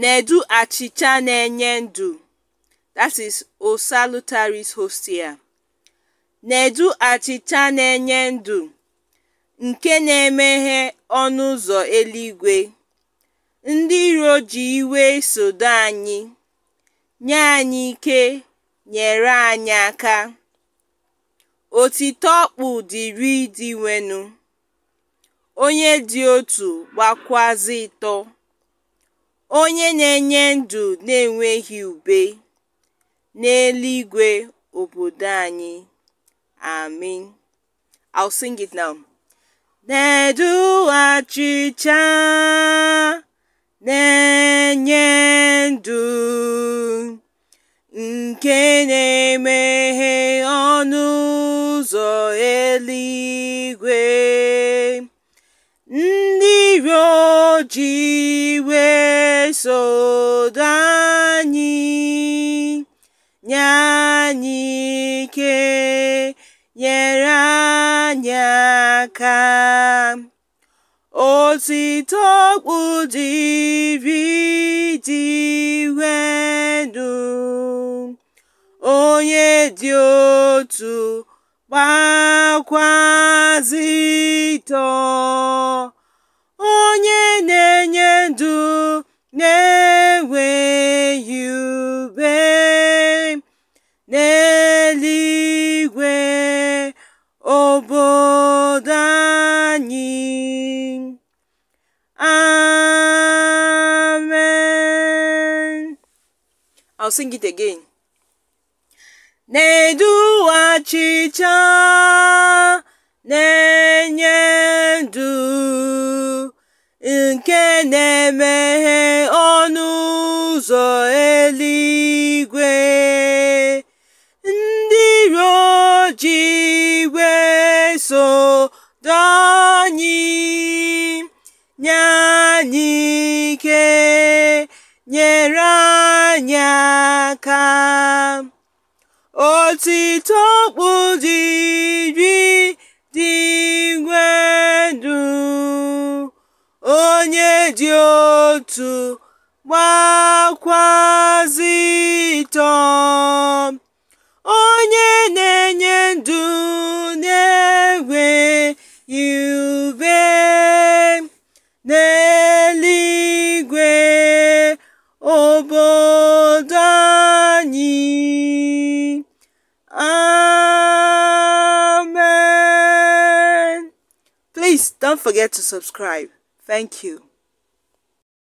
Nedu achịcha na-enye ndụ (O Nedu achịcha na-enye ndụ, nke na-emeghe ọnụ ụzọ eluigwe, ndị iro ji iwe isodo anyị, nye anyị ike, nyere anyị aka, Otito ọkpụ dịịrị wenu onye dị otu gbakwazị ịtọ. Onye na-enye ndụ na-enweghị ube, n'eluigwe obodo anyị. Amen. I'll sing it now. na na-enye ndụ nke na-emeghe ọnụ ụzọ eluigwe. Jiwe wesodo anyị nye anyị ike nyere anyị aka otito kpudiri dị wedụ onye dị otu gbakwazitọ n'eluigwe obodo anyị amen i'll sing it again na-edu achịcha na-enye ndụ nke na-emeghe so anyị nye nyere anyị aka otito dị dịri dị igwe onye dị otu gbakwazi Please don't forget to subscribe. Thank you.